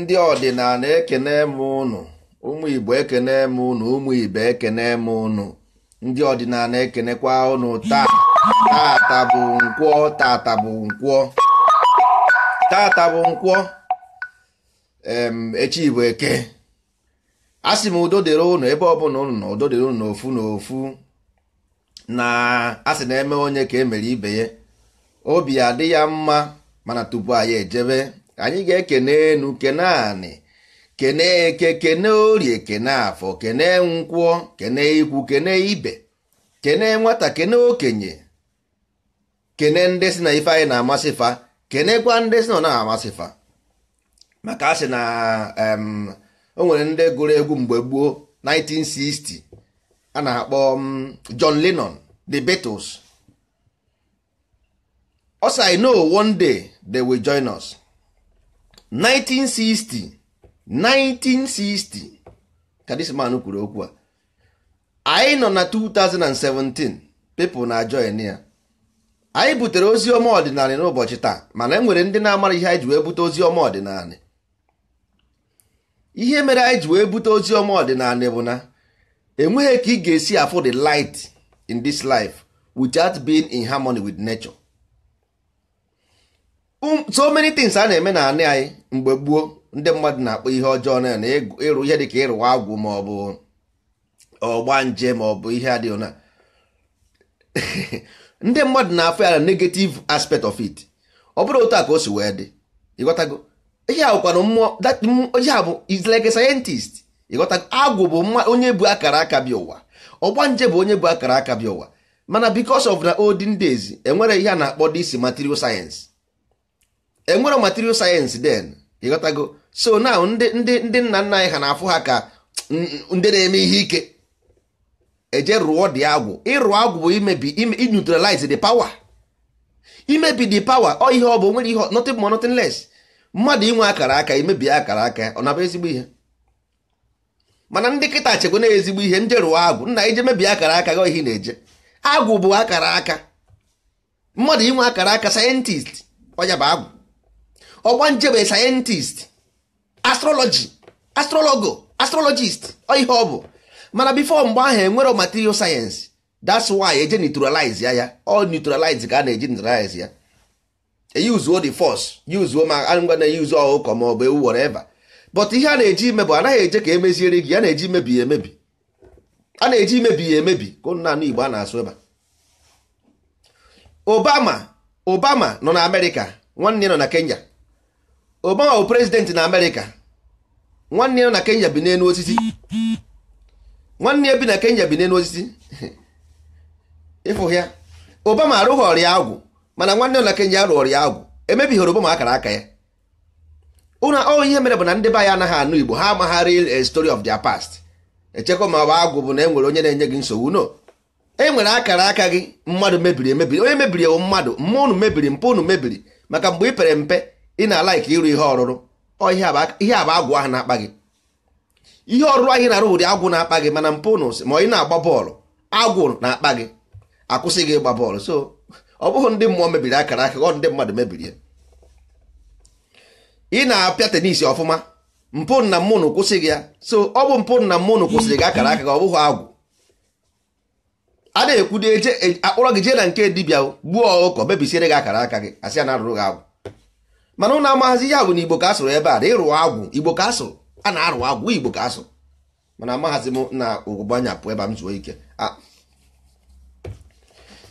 ndị ọdịnala ekene m unu ụmụ igbo ekene m unu ụmụ ibe ekene m unu ndị ọdịnala ekenekwa ụnụ taa tata bụ nkwọ tata bụ nkwọ tata bụ nkwọ echi bụ eke m udo dịrị ụnụ ebe ọbụla ụnụ na udo dịrị ụnụ n'ofu n'ofu na asị na eme onye ka emere ibe ya obi adị ya mma mana tupu anyị ejebe anyị ga-ekene enu kene anị kene eke kene orie kene afọ kene ke kene ikwu kene ibe kene nwata kene okenye kene ndị si na ife anyị na-amasị fa kene gwa ndị si na ọ na-amasị fa maka a sị na o nwere ndị gụrụ egwu mgbe gboo 1960 a na-akpọ John Lennon the Beatles ọ one day they will join us. 1960 1960 ka kwuru okwu a anyị nọ na 2017 pepụ na join ya anyị butere ozi ọma ọdịnala n'ụbọchị taa mana enwere ndị na-amara ihe anyị ji wee bute ozi ọma ọdịnala ihe mere anyị ji wee bute ozi ọma ọdịnala bụ na enweghị ka ị ga-esi afụ the light in this life without being in harmony with nature. Um, so many things a na-eme na anị anyị mgbe gboo ndị mmadụ na-akpọ ihe ọjọọ na na ịrụ ihe dịka ịrụwa agwụ ma ọ bụ ọgba nje ma ọ bụ ihe adịghị na ndị mmadụ na-afụ ya na negative aspect of it ọ bụrụ otu a ka o si wee dị ịghọtago ihe awụkwanụ mmụọ ihe a bụ like a scientist ịghọtago agwụ bụ onye bụ akara aka bịa ụwa ọgba nje bụ onye bụ akara aka bịa ụwa mana because of na olden days enwere ihe a na-akpọ this material science enwere material sayensị den ịghọtago so now ndị ndị ndị nna nna anyị ha na-afụ ha ka ndị na-eme ihe ike eje rụọ dị agwụ ịrụ agwụ bụ imebi neutralize the power imebi the power ọ ihe ọ bụ nwere ihe nothing more nothing less mmadụ inwe akara aka imebi akara aka ọ nabụ ezigbo ihe mana ndị kịta chekwa na ezigbo ihe nje rụọ agwụ nna eje mebie akara aka gị ihe na-eje agwụ bụ akara aka mmadụ inwe akara aka sayentist ọnya bụ agwụ ọgbanjebe sayentist astrology astrologo astrologist ihe ọ bụ mana bifo mgbe ahụ enwero material sayensị that's why eje neutralize ya ya ọ neutralize ka a na-eji neutralize ya e uzuo the force uzuo ma na eyi use ọkụkọ ma ọ bụ ewu whatever but ihe a na-eji ime bụ anaghị eje ka emeziere gị a na-eji imebi ya emebi a na-eji imebi ya emebi ka nnanụ Igbo a na-asụ ebe Obama Obama nọ na Amerịka nwanne nọ na Kenya obama bụ prezidenti na amerịka nwanne ya na kenya bi n'elu osisi nwanne ya bi na kenya bi n'elu osisi ịfụ obama arụghị ọrịa agwụ mana nwanne ya na kenya rụọ ọrịa agwụ emebighị obama akara aka ya ụna ọ ihe mere bụ na ndị be anyị anaghị anụ igbo ha amaghị a eh, story of their past echekwa ma ọ bụ agwụ bụ na enwere onye na-enye gị nsogbu no e nwere akara aka gị mmadụ mebiri emebiri onye mebiri ewu mmadụ mma unu mebiri mpe unu mebiri maka mgbe ị pere mpe ị na-alaik ịrụ ihe ọrụrụ ihe a bụ agwụ ahụ na-akpa gị ihe ọrụrụ anyị na-arụ ụdị agwụ na-akpa gị mana mpụ nụsị ma ị na-agba bọọlụ agwụ na-akpa gị akwụsị gị ịgba bọọlụ so ọ bụghị ndị mmụọ mebiri akara aka ndị mmadụ mebiri ya ị na-apịa tenisi ọfụma mpụ na mmụnụ kwụsị gị ya so ọ bụ mpụ na mmụnụ kwụsịrị gị akara aka gị ọ bụghị agwụ a na-ekwu e, akpọrọ gị jee na nke dibịa gbuo ọkụkọ mebisiere gị akara aka gị asị na arụrụ gị agwụ mana ụnụ amaghazi ihe agwụ na igbo ka asụrụ ebe a na agwụ igbo ka asụrụ a na arụ agwụ igbo ka asụrụ mana amaghazi m na ụgbanyapụ ebe m zuo ike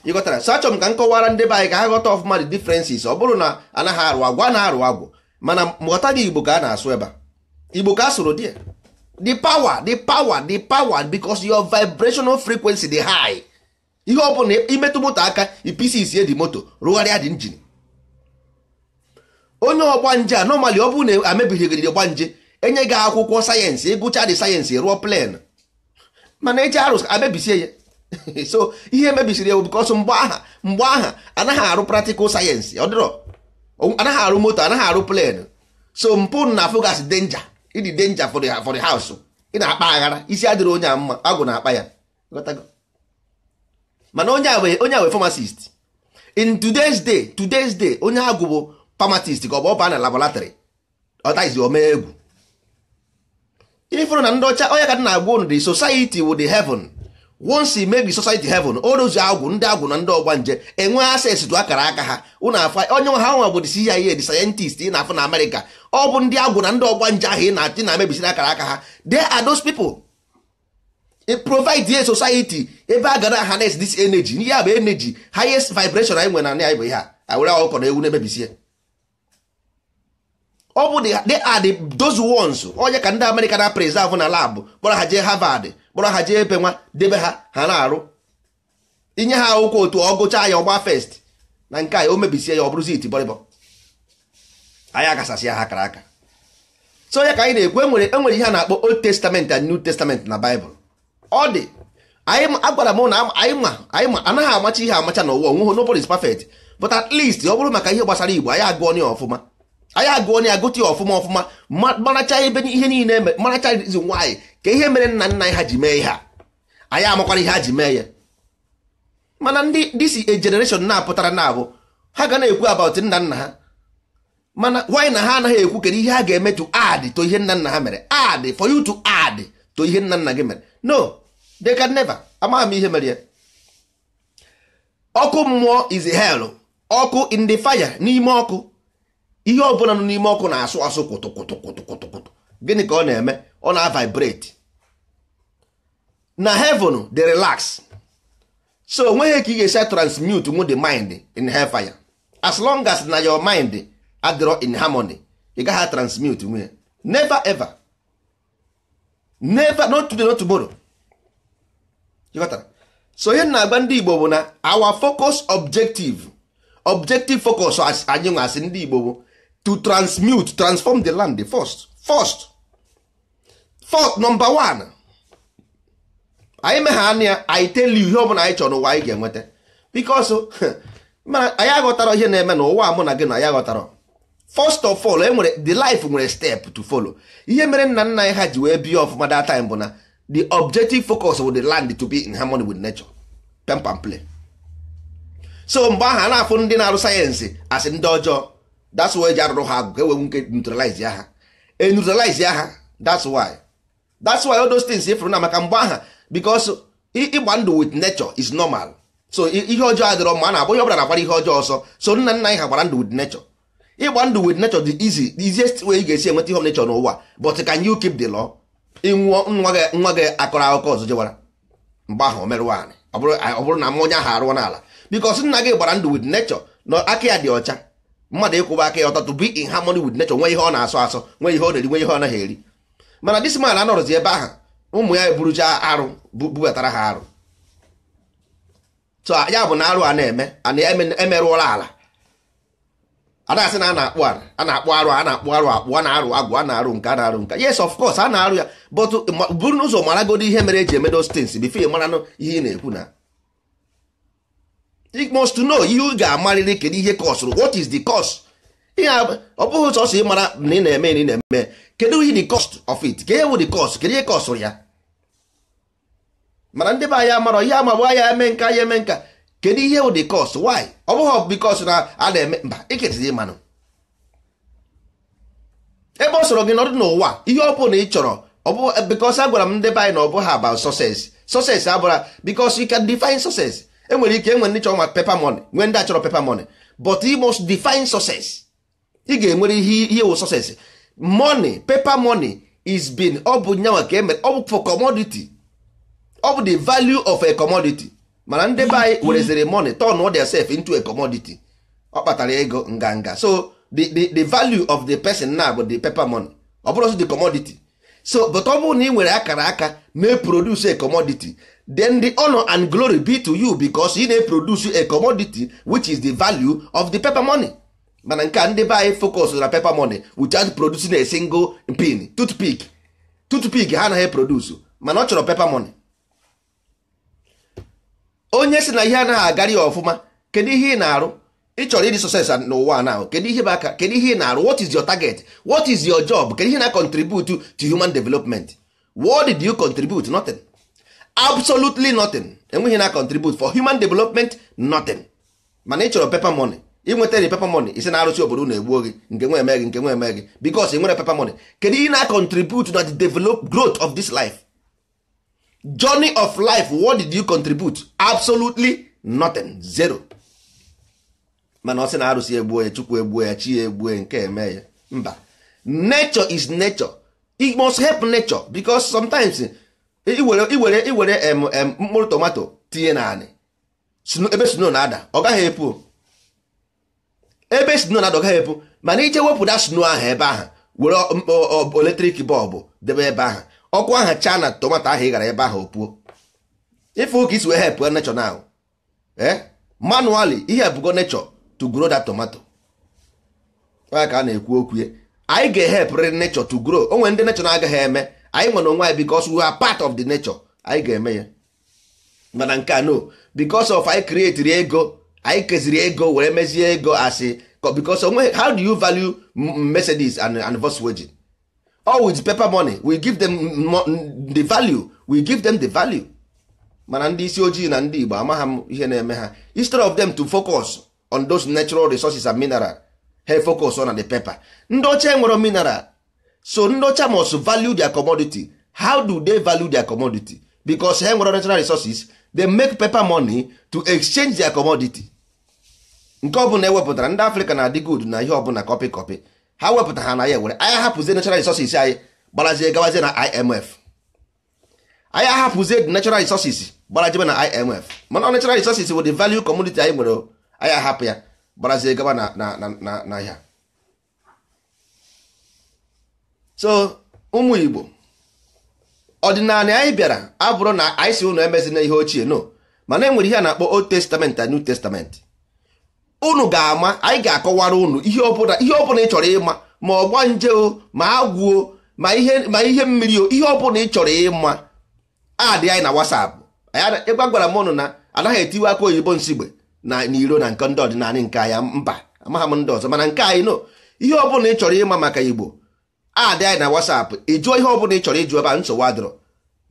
ịghọtara sachọm ka m kọwara ndị be anyị ka ha ghọta ọfụma dị differences ọ bụrụ na anaghị arụ agwụ a na-arụ agwụ mana ghọta gị igbo ka a na-asụ ebe a igbo ka asụrụ dị the power the power the power because your vibrational frequency dị high ihe ọ bụla imetụ moto aka ipisi isie dị moto rụgharịa dị injin onye ọgbanje a nọmali ọ bụrụ na gba ọgbanje enye gị akwụkwọ sayensị ịgụcha dị sayensị rụọ plen mana eji arụs amebisie ya so ihe emebisiri ewu bikọsọ mgbe aha mgbe aha anaghị arụ praktikal sayensị ọ dịrọ anaghị arụ moto anaghị arụ plen so mpụ na fogas denja ịdị denja for the house ị na-akpa aghara isi adịrị onye a mma agụ na-akpa ya mana onye a wee onye a wee pharmacist in today's day today's day onye agụ bụ famatist ka ọ bụ ọba na labọlatrị ọtaizi omee egwu ifụrụ na ndị ọcha onye ka dị na-agwa unu the society with the heaven once make the society heaven orozu agwụ ndị agwụ na ndị ọgba nje enwe access to akara aka ha ụnụ afa onye ha nwa bụ the CIA the scientist ị na-afụ na Amerịka ọ bụ ndị agwụ na ndị ọgba nje ahụ ị na-achị na mebisiri akara aka ha there are those people it provide a society ebe a gara harness this energy ihe a bụ energy highest vibration anyị nwere na anyị bụ ihe a were ọkọ na ewu na-emebisie ọ bụ they are the those ones onye ka ndị Amerịka na preserve na labụ kpọrọ ha jee Harvard kpọrọ ha jee ebe nwa debe ha ha na-arụ inye ha akwụkwọ otu ọ gụchaa ya ọgba fest na nke a o mebisie ya ọ bụrụ iti bọrịbọ anyị agasasị ya ha kara aka so onye ka anyị na-ekwu enwere enwere ihe a na-akpọ old testament and new testament na baịbụl ọ dị anyị agwara m na anyị ma anyị ma anaghị amacha ihe amacha n'ụwa onweghị nobody is perfect but at least ọ bụrụ maka ihe gbasara igbo anyị agụọ ya ọfụma anyị agụ onye agụta ya ọfụma ọfụma maracha ebe ihe niile maracha zi nwaanyị ka ihe mere nna nna ha ji mee ihe a anyị amakwara ihe ha ji mee ya mana ndị disi generation na-apụtara na abụ ha ga na-ekwu about nna nna ha mana why na ha anaghị ekwu kedu ihe ha ga-eme to ad to ihe nna nna ha mere ad for you to add to ihe nna nna gị mere no they can never amaghị m ihe mere ya ọkụ mmụọ is hell ọkụ in the fire n'ime ọkụ ihe ọ bụla nọ n'ime ọkụ na-asụ asụ kwụtụkwụtụkwụtụkwụtụ gịnị ka ọ na-eme ọ na-vibrate na heaven dey relax so onweghị ka ị ga-esi transmute nwu the mind in hellfire as long as na your mind adịrọ in harmony ị gaghị transmute nwe never ever never not today not tomorrow so ihe na-agba ndị Igbo bụ na our focus objective objective focus anyị nwa ndị Igbo bụ to transmute transform the land first first first number one anyị megha ya anyị tell you ihe bụla anyị chọrọ n'ụwa anyị ga-enweta because anyị aghọtara ihe na-eme ụwa mụ na gị na anyị aghọtara first of all enwere the life nwere step to follow ihe mere nna nna anyị ha ji wee bie ọfụma that time bụ na the objective focus of the land to be in harmony with nature pam pam play so mgbe aha a na-afụ ndị na-arụ sayensị asị ndị ọjọọ that's why eji arụrụ ha agụ ka ewe nke neutralize ya e neutralize ya that's why that's why all those things ifụrụ na maka mgbe aha because ịgba ndụ with nature is normal so ihe ọjọọ adịrọ mma a na-abụ ihe ọbụla na-agbara ihe ọjọọ ọsọ so nna nna anyị ha gbara ndụ with nature ịgba ndụ with nature the easy the easiest way ị ga-esi enweta ihe of nature n'ụwa but can you keep the law ịnwụọ nwa gị nwa gị akọrọ akụkọ ọzọ jewara mgbe ahụ o merụ nwaanyị ọ bụrụ na m onye ahụ arụọ n'ala because nna gị gbara ndụ with nature na aka ya dị ọcha mmadụ ịkwụba aka ya ọtọ to be in harmony with nature nwee ihe ọ na-asọ asọ nwee ihe ọ na-eri nwee ihe ọ naghị eri mana this man anọrọzi ebe ahụ ụmụ ya eburucha arụ bubatara ha arụ so ya bụ na arụ a na-eme ana emerụọla ala ada asị na a na-akpụ arụ a na-akpụ arụ a na-akpụ arụ akpụ a na-arụ agwụ a na-arụ nke a na-arụ nka yes of course a na-arụ ya but buru n'ụzọ maragodi ihe mere eji emedo stins bifo ị maranụ ihe ị na-ekwu na you must know ihe ga-amarịrị kedu ihe kọsụrụ what is the cost ihe ọ bụghị mara na ị na-eme na ị na-eme kedu the cost of it ka ihe the cost kedu ihe kọsụrụ ya mana ndị be anyị amarọ ihe amagbu ya eme nka ya eme nka kedu ihe wụ the cost why ọ bụghị because na a na-eme mba iketizi ịmanụ ebe ọ sọrọ gị nọdụ n'ụwa ihe ọ bụla ị chọrọ ọ bụ because m ndị be anyị na ọ bụghị about success success abụra because you can define success enwere ike enwere ndị chọrọ ma pepa money nwee ndị achọrọ pepa money but e must define success ị ga-enwere ihe ihe wụ success money paper money is been ọ bụ nyanwa ka emere ọ bụ for commodity ọ bụ the value of a commodity mana ndị be anyị werezere money turn theirself into a commodity ọ kpatara ego nganga so the the the value of the person na bụ the paper money ọ bụrụ the commodity so but ọ bụrụ na ị nwere akara aka na-eproduce a commodity then the honor and glory be to you because e na produce a commodity which is the value of the paper money mana nke a ndị be anyị focus na paper money without producing a single pin toothpick toothpick ha anaghị produce mana ọ chọrọ paper money onye si na ihe anaghị agara ya ọfụma kedu ihe ị na-arụ ị chọrọ ịdị success n'ụwa now kedu ihe aka kedu ihe ị na-arụ what is your target what is your job kedu ihe na contribute to human development what did you contribute nothing absolutely nothing enweghị na contribute for human development nothing mana ị chọrọ paper money inwetara paper money isi na-arụsị obodo na-egbuo gị nke nwe eme gị nke nwe eme gị because nwere paper money kedu ị na-contribute na the develop growth of this life journey of life what did you contribute absolutely nothing zero mana ọ sị na arụsị egbuo ya chukwu egbuo ya chi ya egbuo ya nke eme ya mba nature is nature it must help nature because sometimes iwere iwere mkpụrụ tomato tinye naanị ebe sno na-ada ọ gaghị epu ebe sno na-ada ọ gaghị epu mana ije wepụta sno ahụ ebe ahụ were eletrik bọlbụ debe ebe ahụ ọkụ ahụ chaa na tomato ahụ ị gara ebe ahụ opuo ife ụka isi wee hepụ nechọ na ahụ ihe ebugo nechọ to grow that tomato ka a na-ekwu okwu anyị ga-ehepụrịrị nechọ to grow o ndị nechọ na-agaghị eme anyị nwere onwe anyị because we are part of the nature anyị ga-eme ya mana nke a no because of anyị create ego anyị keziri ego were mezie ego asị because onwe how do you value Mercedes and, and Volkswagen all with paper money we give them the value we give them the value mana ndị isi ojii na ndị Igbo amaghị m ihe na-eme ha instead of them to focus on those natural resources and mineral they focus on the paper ndị ọcha nwere mineral so ndocha must value their commodity how do they value their commodity because ha nwere natural resources they make paper money to exchange their commodity nke ọbụla ewepụtara ndị Africa na adị good na ihe ọbụla kọpị kọpị ha wepụta ha na ya ewere anyị ahapụzie natural resources anyị gbarazie gawazie na IMF anyị ahapụzie the natural resources gaba na IMF mana natural resources bụ the value commodity anyị nwere ahapụ ya gbarazie gaba na na na so ụmụ igbo ọdịnala anyị bịara abụrụ na anyị si emezi emezina ihe ochie no mana enwere ihe a na-akpọ old testament na new testament unu ga-ama anyị ga-akọwara unu ihe ọbụla ihe ọbụla ị chọrọ ịma ma ọ o ma agwụ ma ihe ma ihe mmiri o ihe ọbụla ị chọrọ ịma adị anyị na WhatsApp ịgwa gwara m ụnụ na anaghị etiwe aka oyibo nsigbe na n'iro na nke ndị ọdịnala nke anya mba amaghị m ndị ọzọ mana nke anyị no ihe ọbụla ị chọrọ ịma maka igbo adị anyị na WhatsApp ịjụọ ihe ọbụla ị chọrọ ịjụ ebe a nsogbu adịrọ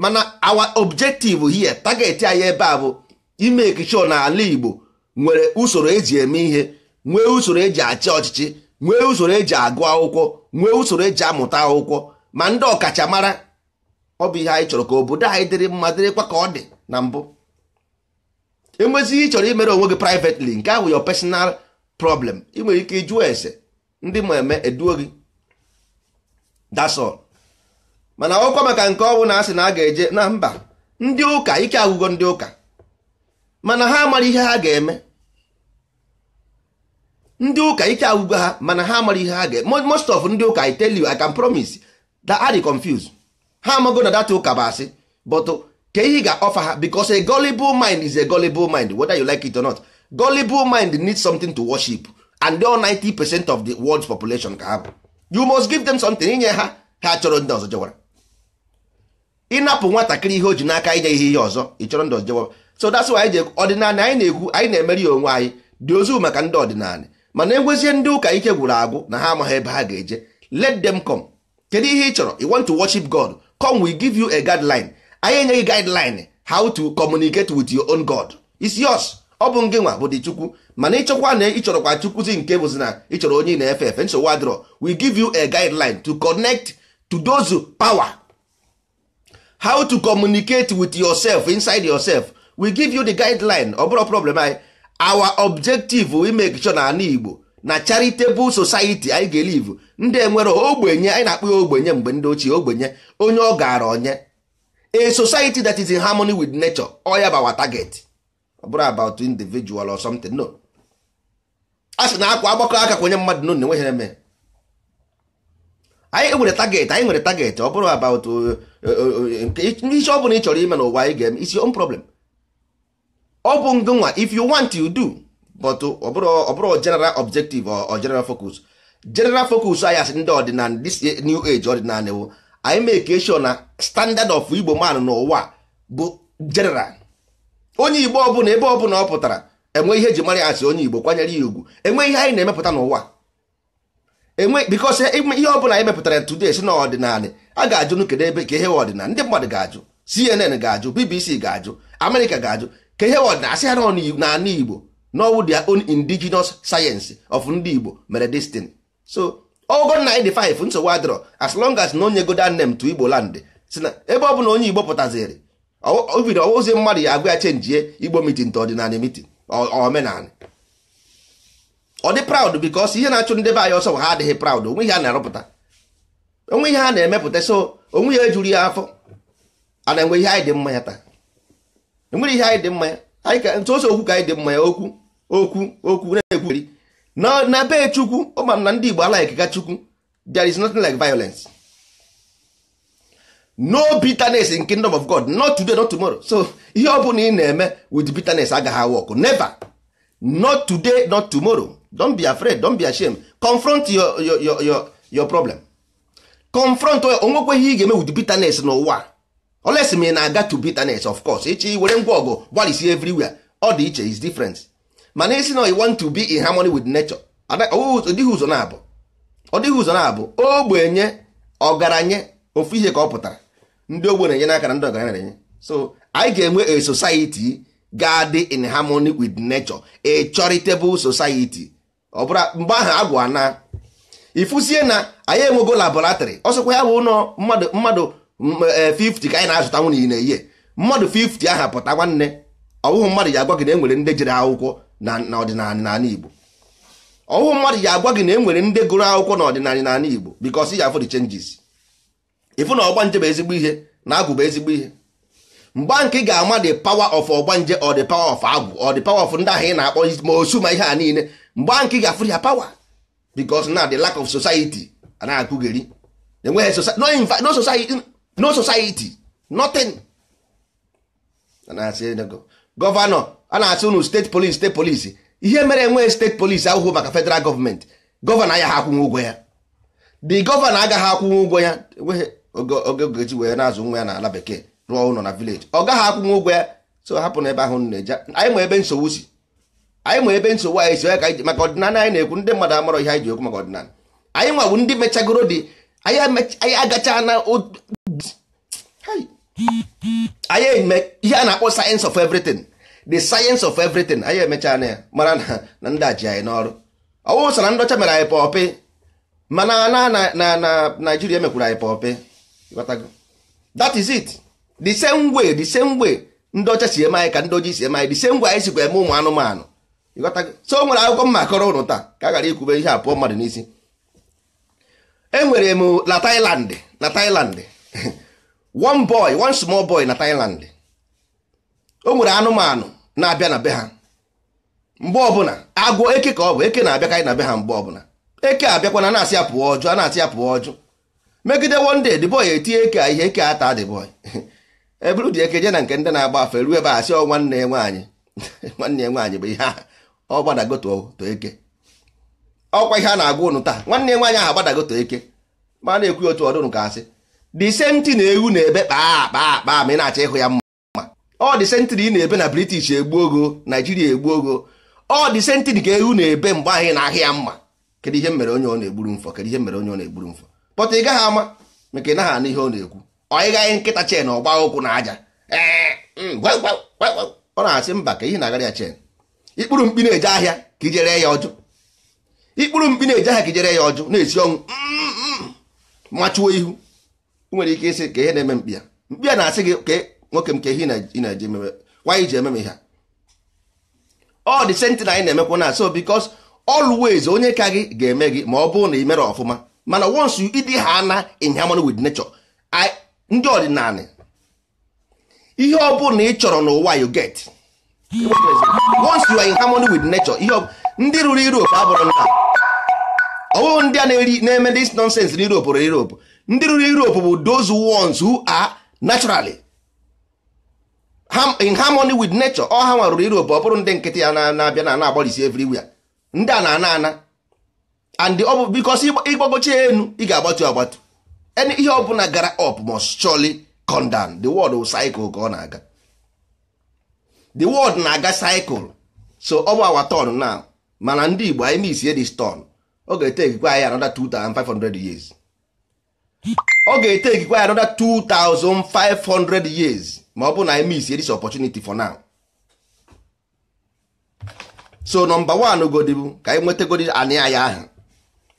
mana our objective here target anyị ebe a bụ ime ekicho na ala Igbo nwere usoro eji eme ihe nwee usoro eji achị ọchịchị nwee usoro eji agụ akwụkwọ nwee usoro eji amụta akwụkwọ ma ndị ọkachamara ọ bụ ihe anyị chọrọ ka obodo anyị dịrị mma dịrịkwa ka ọ dị na mbụ enwezighị ị chọrọ imere onwe gị privetli nke ahụ your personal problem ị nwere ike ịjụọ ese ndị ma eme eduo gị that's all mana ọkwa maka nke ọnwụ na asị na a ga-eje na mba ndị ụka ike agwụgo ndị ụka mana ha mara ihe ha ga-eme ndị ụka ike agwụgo ha mana ha mara ihe ha ga-eme most of ndị ụka I tell you I can promise that are confused ha amago na data ụka bụ asị but ka ihe ga offer ha because a gullible mind is a gullible mind whether you like it or not gullible mind needs something to worship and all 90 percent of the world's population ka ha bụ you must give them something inye ha ha chọrọ ndị ọzọ jewara ịnapụ nwatakịrị ihe o ji n'aka inye ihe ihe ọzọ ị chọrọ ndị ọzọ jewara so that's why anyị ọdịnala anyị na-ekwu anyị na-emeri onwe anyị dị ozu maka ndị ọdịnala mana enwezie ndị ụka ike gwụrụ agwụ na ha amaghị ebe ha ga-eje let them come kedu ihe ị chọrọ you want to worship God come we give you a guideline anyị enyeghị guideline how to communicate with your own God it's yours ọ bụ ngị nwa bụ dị chukwu mana ịchọkwa na ịchọrọkwa chukwuzi nke bụzi na ịchọrọ onye na-efe efe nsogbu wadro we give you a guideline to connect to those power how to communicate with yourself inside yourself we give you the guideline ọ bụrụ problem anyị our objective we make sure na ana igbo na charitable society anyị ga-elive ndị e nwere ogbenye anyị na akpụ ya ogbenye mgbe ndị ochie ogbenye onye ọ gaara onye a society that is in harmony with nature ọ ya our target ọ bụrụ about individual or something no a sị na akwa agbakọ aka kwenye mmadụ n'ụlọ enweghị eme anyị nwere target anyị nwere target ọ bụrụ about isi uh, uh, uh, ọ bụla ị chọrọ ime n'ụwa anyị ga-eme isi on problem ọ bụ ngụnwa if you want you do but ọ bụrụ general objective or general focus general focus anyị asị ndị ọdịnala this new age ọdịnala anyị make sure na standard of igbo man n'ụwa bụ general onye igbo ọbụla ebe ọbụla ọ pụtara enwe ihe eji mara ya onye igbo kwanyere ya ugwu enwe ihe anyị na-emepụta n'ụwa enwe bikos e, ihe ọbụla anyị mepụtara today si na ọdịnala a ga-ajụ kedu ebe ka ihe ọdịnala ndị mmadụ ga-ajụ CNN ga-ajụ BBC ga-ajụ Amerịka ga-ajụ ka ihe ọdịnala asị ha n'ala igbo n'ọwụ their own indigenous science of ndị igbo mere destin so ogo na dị 5 nsogbu adịrọ as long as na onye goda nne m to igbo land si na ebe ọbụla onye igbo pụtaziri ovido ozi mmadụ ya agwa ya chenjie igbo mitin nta ọdịnala mitin omenala ọ dị praụd bikos ihe na-achụ ndị be anyị ọsọ ha adịghị praụd onwe ihe a na-arụpụta onwe ihe a na-emepụta so onwe ihe ejuru ya afọ a na-enwe ihe anyị dị mma ya taa enwere ihe anyị dị mma ya anyị ka ntụ ose okwu ka anyị dị mma ya okwu okwu okwu na-ekwugheri na be chukwu ọ na ndị igbo alaghị ka chukwu there is nothing like violence no bitterness in kingdom of god not today not tomorrow so ihe ọbụla ị na-eme with bitterness agaghị work never not today not tomorrow don't be afraid don't be ashamed confront your, your, your, your, your problem confront onwekwe ihe ị ga-eme with bitterness n'ụwa oles m na-aga to bitterness of course ịchị were ngwa ọgụ gbalịsi everywhere ọ dị iche is different mana isi na want to be in harmony with nature ọ dịghị ụzọ na-abụ ogbenye ọgaranya ofu ihe ka ọ pụtara ndị ogbe na-enye n'aka ndị ọgaranya na-enye so anyị ga-enwe a society ga in harmony with nature a charitable society ọ bụla mgbe ahụ agwụ na ifusie na anyị enwego laboratory ọsọkwa ya bụ ụlọ mmadụ mmadụ e, fifty ka anyị na-azụta nwunye na-eyi mmadụ fifty aha pụta nwanne ọwụhụ mmadụ ji agwa gị na enwere ndị jere akwụkwọ na ọdịnala n'ala Igbo ọwụhụ mmadụ ji agwa gị na enwere ndị gụrụ akwụkwọ na ọdịnala n'ala Igbo because ya afọ the changes ịfụ na ọgbanje bụ ezigbo ihe na agwụ bụ ezigbo ihe mgbe nke ga-ama the power of ọgbanje or the power of agwụ or the power of ndị ahụ ị na-akpọ ma osu ma ihe a niile mgbe nke ga-afụ ya power because na the lack of society na-akụgheri enweghị no society no society nothing gọvanọ a na-asị unu steeti polisi steeti polisi ihe mere enweghị steeti polisi ahụhụ maka federal gọọmenti gọvanọ agaghị akwụnwe ụgwọ ya the gọvanọ agaghị akwụnwe ụgwọ ya enweghị oge ogechi wee na-azụ nwa ya na ala bekee rụọ ụlọ na vileji ọ gaghị akwụnwe ụgwọ ya so hapụ ebe ahụ na-eje anyị ma ebe nsogbu si anyị ma ebe nsogbu anyị si ka anyị maka ọdịnala anyị na-ekwu ndị mmadụ amarọ ihe anyị ji ekwu maka ọdịnala anyị nwa bụ ndị mechagoro dị anyị agacha na anyị eme ihe a na-akpọ sayensị of everything the sayensị of everything anyị emecha na ya mara na ndị aji anyị n'ọrụ ọwụsa na ndọcha mere anyị pọpị mana na na na naijiria mekwuru anyị pọpị that is it the same way the same way ndị ọcha si eme anyị ka ndị ojii si eme anyị the same way anyị sikwa eme ụmụ anụmanụ so o nwere akwụkwọ mma kọrọ ụnụ taa ka a ghara ikwube ihe a pụọ mmadụ n'isi enwere m na Thailand na Thailand one boy one small boy na Thailand o nwere anụmanụ na-abịa na be ha mgbe ọbụla agwọ eke ka ọ bụ eke na-abịa ka anyị na be ha mgbe ọbụla eke abịakwana na-asị ya pụọ ọjụ a na-asị ya pụọ ọjụ megide wonde de the boy etinye ihe eke ata the boy eburu dị eke je na nke ndị na-agba afa ruo ebe a sị ọ nwanne ya nwaanyị nwanne ya nwaanyị bụ ihe a ọ gbadago to eke ọkwa ihe a na-agwa ụnụ taa nwanne ya nwaanyị ahụ agbadago to eke ma na-ekwu otu ọdụnụ ka asị the na-ewu na-ebe kpaa akpa akpa ma ị na-achọ ịhụ ya mma ọ the same ị na-ebe na british egbu ogo naijiria egbu ogo ọ the same thing ka ewu na-ebe mgbe anyị na-ahịa ya mma kedu ihe mere onye ọ na-egburu mfọ kedu ihe mere onye ọ na-egburu mfọ pọta ị gaghị ama maka ị naghị anụ ihe ọ na-ekwu ọnyịgaghị nkịta chen ọgba ụkwụ na aja mm, ọ na-asị mba ka ihe na-agara ya chen ikpụrụ mkpi na-eje ahịa ka ijere ya ọjụ ikpụrụ mkpi na-eje ahịa ka ijere ya ọjụ na-esi ọnwụ machuo mm, mm. ihu nwere ike ịsị ka ihe na-eme mkpi ya mkpi ya na-asị gị ka nwoke m ka ihe ị na-eje ememe wanyị ji ememe ha ọ dị na anyị na-emekwa na so bikos always onye ka gị ga-eme gị ma ọ bụrụ na ị mere ọfụma mana once you ịdị ha na in harmony with nature ndị ọdịnala ihe ọ bụla na ị chọrọ n'ụwa you get once you are in harmony with nature ihe ndị ruru Europe abụrụ nna ọwụghụ ndị a na-eme this nonsense na Europe rụrụ Europe ndị ruru Europe bụ those ones who are naturally in harmony with nature ọ ha nwa rụrụ Europe ọ bụrụ ndị nkịtị ya na-abịa na na-agbalịsi everywhere ndị a na-ana ana and ọ bụ because ịgbagocha enu ị ga-agbatu agbatu any ihe ọbụla gara up must surely come down the world will cycle ka ọ na-aga the world na-aga cycle so ọ bụ our turn now mana ndị Igbo anyị misie this turn ọ ga-etekikwa anyị anoda 2500 years ọ ga-etekikwa anyị another 2500 years ma ọ bụ na anyị misie this opportunity for now so number one godi ka anyị nwetagodi anị anyị ahụ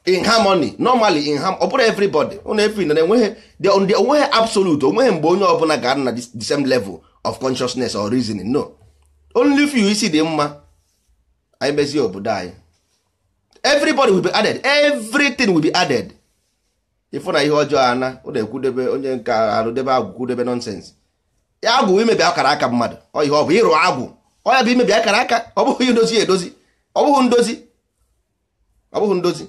in harmony normally in harmony ọ bụrụ everybody ụna efi na enweghị onweghị absolute onweghị mgbe onye ọbụla ga-adị na the same level of consciousness or reasoning no only few isi dị mma anyị mezie obodo anyị everybody will be added everything will be added ịfụ na ihe ọjọọ ana ụna ekwudebe onye nke arụdebe agwụ kwudebe nonsense agwụ imebi akara aka mmadụ ọ ihe ọ bụ ịrụ agwụ ọ bụ akara aka ndozi ndozi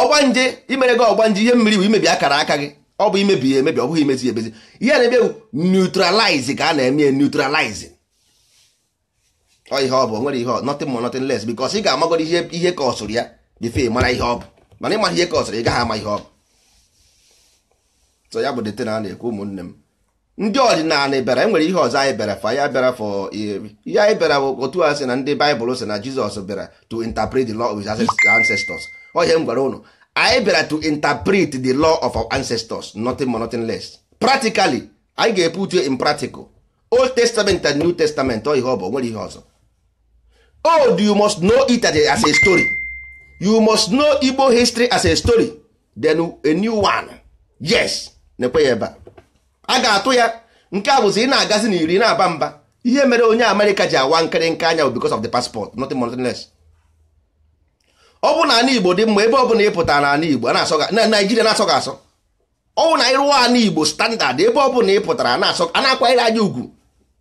ọgbanje imere gị ọgbanje ihe mmiri bụ imebi akara aka gị ọ bụ imebi ya emebi ọ bụghị imezi emezi ihe na-eme bụ neutralize ka a na-eme neutralize ọ ihe ọ bụ nwere ihe nothing more nothing les because ị ga-amagoro ihe ihe ka ọsụrụ ya bifee mara ihe ọ bụ mana ịmara ihe ka ọsụrụ ị gaghị ama ihe ọ bụ so ya bụ dete na a na-ekwu ụmụnne m ndị ọdịnala bịara enwere ihe ọzọ anyị bịara fa ya bịara fọ ihe anyị bịara otu a sị na ndị baịbụl sị na jizọs bịara to interpret the law of his ancestors ohe m gwara ụnụ anyị bịara to interpret the law of our ancestors nothing more nothing less practically anyị ga-epu uche in practical old testament and new testament ọ ihe ọ bụ nwere ihe ọzọ old oh, you must know it as a story you must know igbo history as a story then a new one yes na-ekwe ya ebe a a ga-atụ ya nke a bụzi ị na-agazi na iri na-aba mba ihe mere onye amerịka ji awa nke anya because of the passport nothing more nothing less ọ bụ na ana igbo dị mma ebe ọ bụla ịpụta na ana igbo na naijiria na-asọ gị asọ ọ bụ na anyị rụọ ana igbo standard ebe ọ bụla ịpụtara a na-akwanyere anyị ugwu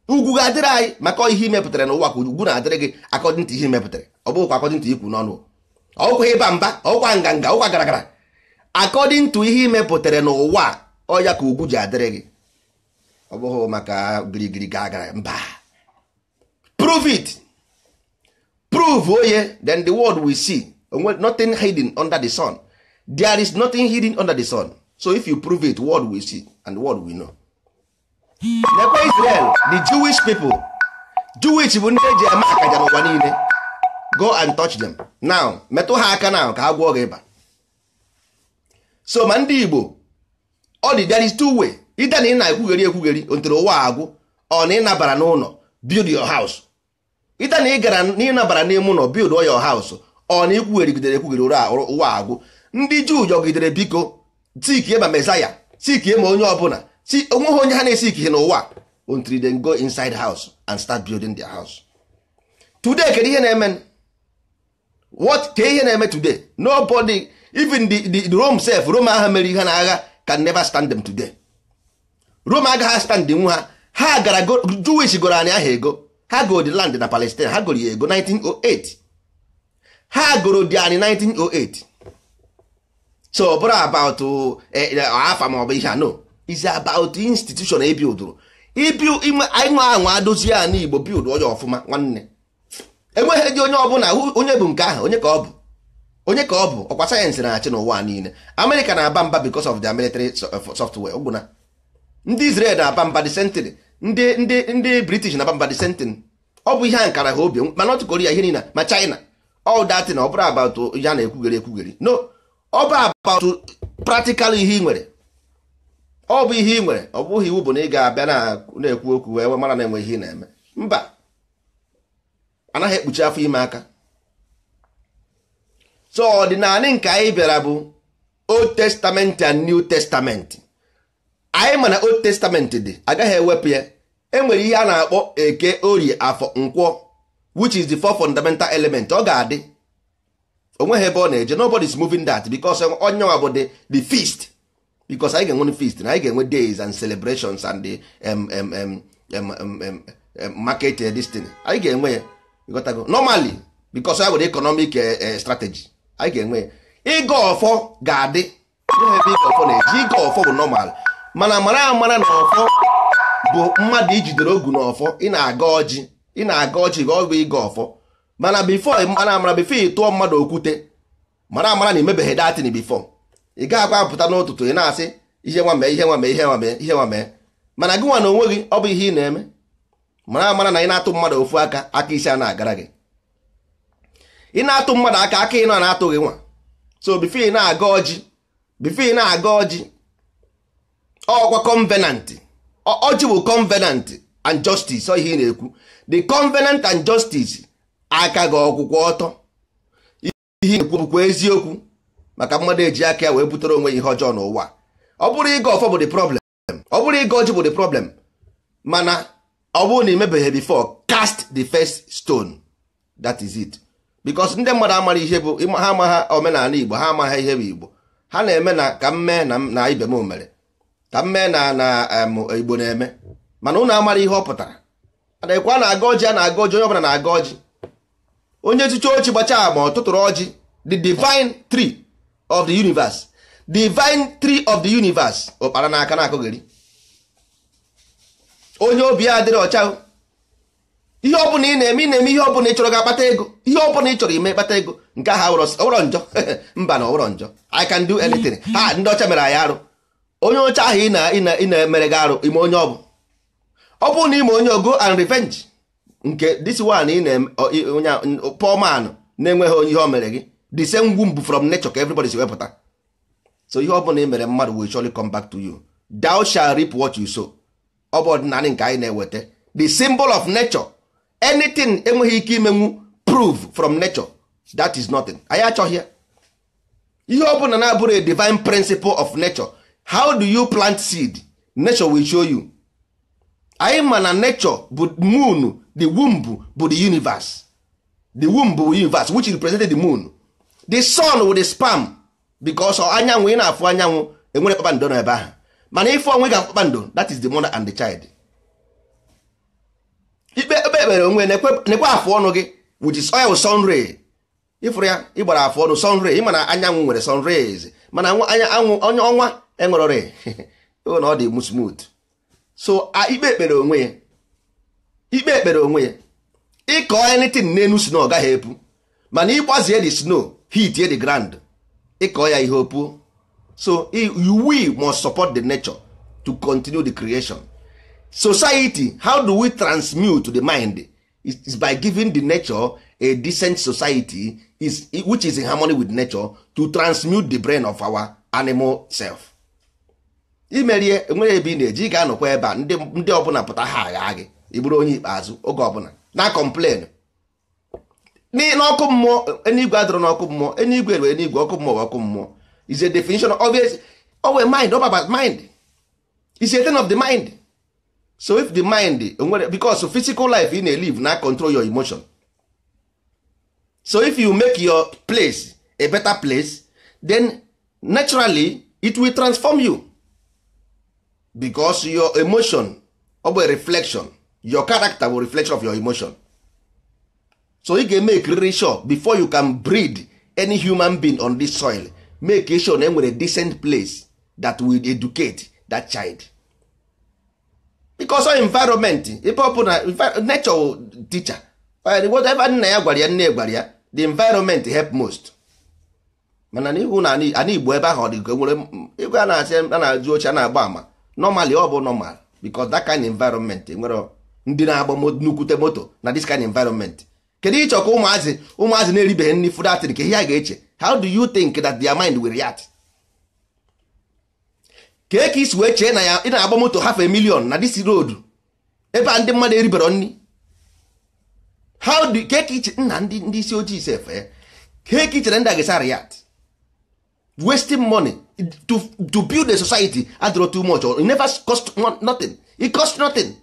ugwu ga-adịrị anyị maka ihe imepụtara n'ụwa ka ugwu na-adịrị gị akọdịn ihe imepụtara ọ bụkwa akọdịn ikwu n'ọnụ ọkwa ịba mba ọkwa nganga ọkwa garagara akọdịn ihe imepụtara n'ụwa ọya ka ugwu ji adịrị gị ọ bụghị maka girigiri ga agara mba prove it prove oye oh then the world will see nothing hidden under the sun there is nothing hidden under the sun so if you prove it world will see and the world will know nekwa Israel the Jewish people Jewish bụ ndị eji eme akaja n'ụwa niile go and touch them now metụ ha aka now ka ha gwọọ gị ịba so ma ndị Igbo ọ dị there is two way ide na ị na-ekwugheri ekwugheri ntere ụwa agwụ ọ na ịnabara n'ụlọ build your house ide na ị gara na ịnabara n'ime ụlọ build your house ọ na ikwugherigidere ekwugheri ụwa agwụ ndị juu yọgidere biko tikie ma mesaya tikie ma onye ọbụla ti onweghị onye ha na-esikighị n'ụwa until they go inside house and start building their house today kedu ihe na-eme what ka ihe na-eme today nobody even the, the, the Rome self Rome agha mere ihe na agha can never stand them today rom agaghị aspandị nwa ha ha gara jewish gụrụ anyị aha ego ha goro di land na palestine ha goro ya ego 1908 ha goro anyị 1908 so ọ bụrụ about eh, eh, afa ma ọ bụ ihe a no is about institution ebildụrụ ịnwa anwa dozie a igbo bild onye ọfụma nwanne enweghị dị onye ọbụla onye bụ nke ahụ onye ka ọ bụ onye ka ọ bụ ọkwa sayensị na-achị n'ụwa niile amerịka na-aba mba because of their military software ọgwụna ndị Israel na-aba mba the ndị ndị ndị British na-aba mba the ọ bụ ihe a nkara ha obi ma North Korea ihe niile ma China all that na ọ bụrụ about ya na-ekwugere ekwugere no ọ bụ about ihe ị nwere ọ bụ ihe ị nwere ọ bụghị iwu bụ na ị ga-abịa na-ekwu okwu wee mara na enwe ihe ị na-eme mba anaghị ekpuchi afọ ime aka so ọdịnala nke anyị bịara bụ Old Testament and New Testament anyị ma na old testament dị agaghị ewepụ ya enwere ihe a na-akpọ eke orie afọ nkwọ which is the four fundamental element ọ ga-adị onweghị ebe ọ na-eje nobody is moving that because onye nwa bụ the feast because anyị ga-enwe feast na anyị ga-enwe days and celebrations and the market eh, destiny anyị ga-enwe ya ịghọtago normally because ya nwere economic eh, eh, strategy anyị ga-enwe ya ịga ọfọ ga-adị ịga ọfọ na-eji ịga ọfọ bụ normal mana mara amara na ọfọ bụ mmadụ ijidere ogu na ọfọ ị na-aga ọjị ị na-aga ọjị ga ọ bụ ịga ọfọ mana bifo mara amara bifo ị tụọ mmadụ okwute mara amara na imebeghị datin bifo ị gaghị apụta n'ụtụtụ ị na-asị ihe nwa mee ihe nwa mee ihe nwa mee ihe nwa mee mana gị nwa na onwe gị ọ bụ ihe ị na-eme mara amara na ị na-atụ mmadụ ofu aka aka isi a na-agara gị ị na-atụ mmadụ aka aka ị nọ na-atụghị nwa so bifo ị na-aga ọjị bifo ị na-aga ọjị ọkwa covenant ojibụ bụ covenant and justice ọ ihe ị na-ekwu the covenant and justice aka gị ọkwụkwọ ọtọ ihe na-ekwu bụkwa eziokwu maka mmadụ eji aka ya wee butere onwe ihe ọjọọ n'ụwa ọ bụrụ ịga ọfọ bụ the problem ọ bụrụ ịga ọjị bụ the problem mana ọ bụrụ na imebeghị bifo cast the first stone that is it because ndị mmadụ amara ihe bụ ha amaghị omenala igbo ha amagha ihe bụ igbo ha na-eme na ka m mee na ibe m mere ka mme na na igbo na-eme mana ụnụ amara ihe ọ pụtara adịkwa na-aga ọjị a na-aga ọjị onye ọbụla na-aga ọjị onye chicha ochi gbacha ma ọtụtụrụ ọjị the divine tree of the universe divine tree of the universe ụkpara n'aka na-akụgheri onye obi ya adịrị ọcha ihe ọbụla ị na-eme ị na-eme ihe ọbụla ị chọrọ ga-akpata ego ihe ọbụla ị chọrọ ime kpata ego nke ahụ ọwụrọ njọ mba na ọwụrọ njọ I can do anything ha ndị ọcha mere anyị arụ onye ọcha ahụ ị na-emere gị arụ ime onye ọbụ ọ bụrụ na ime onye ogo and revenge nke this one ị na-onye poor na-enweghị onye ihe o mere gị the same womb from nature ka everybody si wepụta so ihe ọ bụla ị mere mmadụ will surely come back to you thou shall reap what you sow ọ bụ ọdịnala nke anyị na-eweta the symbol of nature anything enweghị ike imenwu prove from nature that is nothing anyị achọghị ya ihe ọ bụla na-abụrụ a divine principle of nature how do you plant seed nature will show you anyị ma na nature bụ moon the womb bụ the universe the womb bụ universe which represented the moon the sun with the spam because anyanwụ ị na-afụ anyanwụ enwere kpakpando na ebe ahụ mana ife onwe ga kpakpando that is the mother and the child ikpe ebe ekpere onwe ekwe afụ ọnụ gị which is oil sun ray ịfụrụ ya ịgbara afụ ọnụ sun ray ịma na anyanwụ nwere sun rays mana anya anwụ onye ọnwa enwerọrị na ọ dị mu smooth so ikpe ekpere onwe ya ikpe ekpere onwe ya ịkọ na enu snow ọ gaghị epu mana ịgbazie the snow heat the ground ịkọ ya ihe opuo so we must support the nature to continue the creation society how do we transmute di the mind is by giving the nature a decent society is, which is in harmony with nature to transmute the brain of our animal self imerie nwere ebe ị na-eji ị ga-anọkwa ebe a ndị ọbụla pụta ha agha gị ị onye ikpeazụ oge ọbụla na kọmplen n'ọkụ mmụọ enigwe adọrọ n'ọkụ mmụọ enigwe were enigwe ọkụ mmụọ ọkụ mmụọ is a definition of it owe mind ọba mind is a thing of the mind so if the mind nwere because physical life ị na-elive na control your emotion so if you make your place a better place then naturally it will transform you because your emotion over reflection your character will reflection of your emotion so ị ga-eme ekiriri sure before you can breed any human being on this soil make sure na enwere decent place that will educate that child because our environment ebe ọ bụ na nature teacher whatever nna ya gwara ya nne gwara ya the environment help most mana n'ihu na ana igbo ebe ahụ ọ dị nwere igwe a na-asị a na-ajụ oche a na-agba ama normally ọ bụ normal because that kind environment e nwere ndị na-agba nnukwute moto na this kind environment kedu ịchọ ka ụmụazị ụmụazị na-eribeghị nri food atịrị ka ihe a ga-eche how do you think that their mind will react kee ka isi wee chee na ya ị na-agba moto half a million na this road ebe a ndị mmadụ eribere nri how do ka e iche nna ndị isi ojii sefe eh, kee ka e ndị a wasting money to to build a society adịrọ too much or it never cost nothing it cost nothing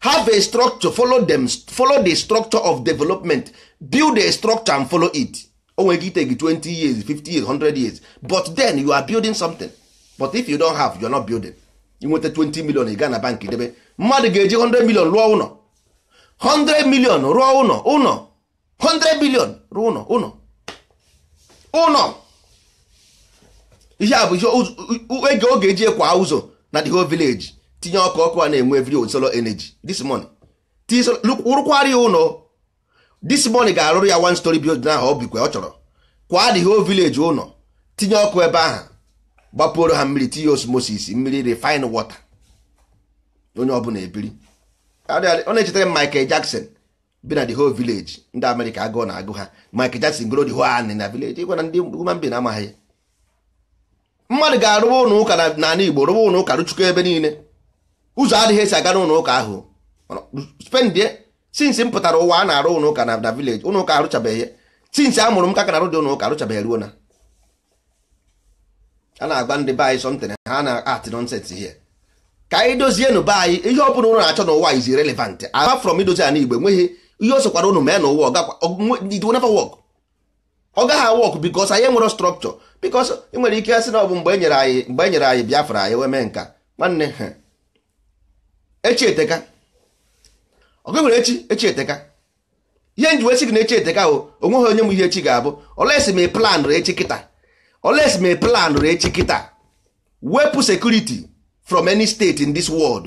have a structure follow them follow the structure of development build a structure and follow it o oh, nwere take 20 years 50 years 100 years but then you are building something but if you don't have you are not building you inweta 20 million ị gana na bank debe mmadụ ga-eji 100 million rụọ ụlọ 100 million rụọ ụlọ ụlọ 100 billion rụọ ụlọ ụlọ ụlọ ihe a bụ ihe oge oge eji ekwa ụzọ na the whole village tinye ọkụ ọkụ a na-enwe every solar energy this morning rụkwara ya ụlọ this morning ga-arụrụ ya one story building ahụ ọ ọ chọrọ kwa the whole village ụlọ tinye ọkụ ebe ahụ gbapuoro ha mmiri tinye osmosis mmiri refine water onye ọbụla ebiri ọ na-echetara m Michael Jackson bi na the whole village ndị amerika agụọ na agụ ha Michael Jackson goro the whole anị na village ịgwa na ndị human being amaghị mmadụ ga-arụba ụlọ ụka n'ala Igbo rụba ụlọ ụka rụchukwu ebe niile ụzọ adịghị esi aga n'ụlọ ụka ahụ spendie sinsi m pụtara ụwa a na-arụ ụlọ ụka na vileji ụlọ ụka arụchabeghị sinsi a mụrụ m ka ka na-arụ dị ụlọ ụka arụchabeghị ruo na a na-agba ndị be anyị ha na-atị nonset hie ka anyị dozie be anyị ihe ọ bụla ụlọ na-achọ n'ụwa izi relevant apart from idozi ala Igbo enweghị ihe o sokwara ụnụ mee n'ụwa ọgakwa ọ gaghị awọkụ bikos anyị nwere strọkchọ bikos ị nwere ike asị na ọ bụ mgbe enyere anyị mgbe e nyere anyị biafra anyị wee mee nka nwanne echi eteka ọgụ nwere echi echi eteka ihe nji wee sị gị na echi eteka o onweghị onye m ihe echi ga-abụ olesi ma plan rụrụ echi kịta olesi ma plan rụrụ echi kịta wepụ sekuriti from any state in this world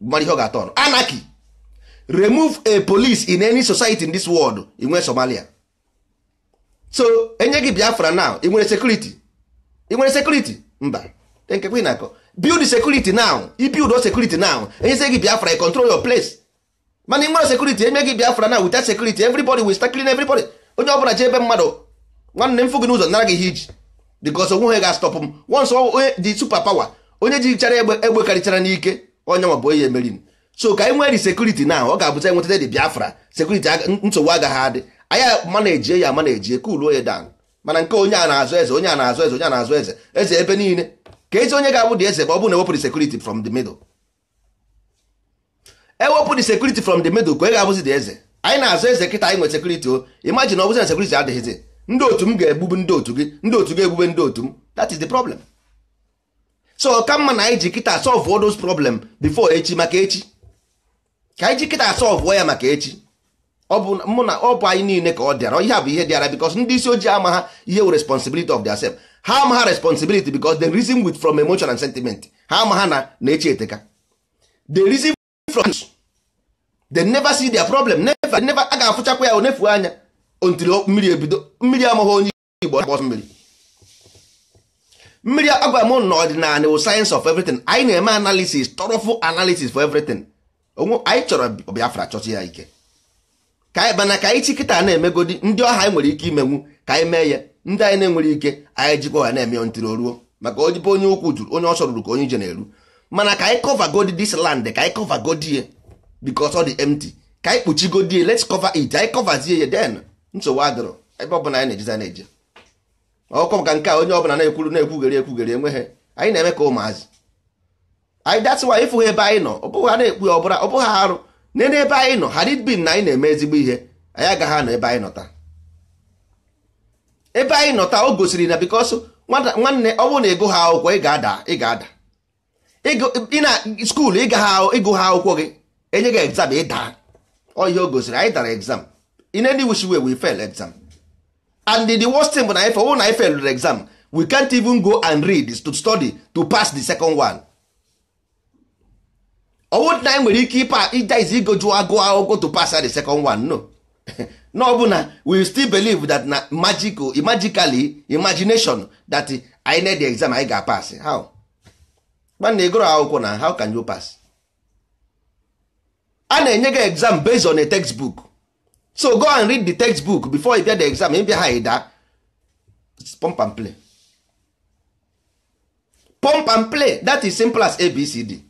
mara ihe ọ ga-atọ anaki! remove a police in any society in this world inwe Somalia so enye gị biafra now ị sekuriti sekuriti mba nke na-akọ build security now build security now gị biafra i control your place mana ị nwere security enye biafra now without security everybody will start clean onye ọbụla ji ebe mmadụ nwanne m fụ gị n'ụzọ nara gị iji ga m once onye dị onye ji chara egbe karịchara n'ike onye onye emeri m ka anyị e nwere security now ọ ga biafra security nsogbu agaghị adị mana-ejie ya manajie ka uluo ya dan mana nke onye a na-azụ eze onye a na-azụ eze onye a na-azụ eze eze ebe niile ka ezi onye ga-abụ dị eze ma ọ bụ na ewepụrụ sekuriti from the middle ewepụ sekuriti from the middle ka onye ga-abụzi dị eze anyị na-azụ eze kịta anyị nwe sekuriti o imagine ọ bụzi na sekuriti adịghịzi ndị otu m ga egbugbu ndị otu gị ndị otu gị egbube ndị otu m that is the problem so ka mma na anyị ji kịta solve all those problem before echi maka echi ka anyị ji kịta solve ya maka echi ọ bụ mụ na ọ bụ anyị niile ka ọ dịara ihe a bụ ihe dịara bikos ndị isi ojii ama ha ihe wụ responsibility of their self ha ama ha responsibility bikos the reason with from emotion and sentiment ha ama ha na na-eche eteka the reason from they never see their problem never never a ga-afụchakwa ya onefu anya ontiri mmiri ebido mmiri amaghị onye igbo akpọ mmiri mmiri agwa m na ọdịnala wụ science of everything anyị na-eme analysis tọrọfụ analysis for everything anyị chọrọ Biafra chọta ya ike ka anyị mana ka anyị chi kịta na-emegodi ndị ọha anyị nwere ike imenwu ka anyị mee ya ndị anyị na-enwere ike anyị jikwa ọha na-eme ntiri ruo maka ojibe onye ukwu juru onye ọsọ ruru ka onye ije na-eru mana ka anyị kọva godi this land ka anyị kọva godie ye ọ dị emti ka anyị kpuchi godie ye let's cover it anyị coverzie ya den nsogbu adịrọ ebe ọbụla anyị na-ejiza na-eje ọkọ maka nke a onye ọbụla na-ekwuru na-ekwugere ekwugere enweghị anyị na-eme ka ụmụazị anyị that's why ịfụ ebe anyị nọ ọ bụghị ha na-ekwu ya ọ bụla ọ bụghị arụ nene ebe anyị nọ hadid bin na anyị na-eme ezigbo ihe anyị agaghị anọ ebe anyị nọta ebe anyị nọta o gosiri na bikos nwanne ọ bụrụ na ịgụ ha akwụkwọ ị ga-ada ị ga-ada ị na skuulu ịgụ ha akwụkwọ gị enye gị egzam ọ ihe o gosiri anyị dara egzam in any wish way we fail exam and the worst thing bụ na anyị fe na anyị failụrụ exam we can't even go and read to study to pass the second one ọwụ na anyị e nwere ike ịpa ijaiz igoju agụ agogo to pass the second one no no bụ na we still believe that na magical magically imagination that i na the exam I ga pass how nwanne ịgụrụ akwụkwọ na how can you pass a na-enye gị exam based on a textbook so go and read the textbook before you get the exam ịbịa ha ịda pump and play pump and play that is simple as abcd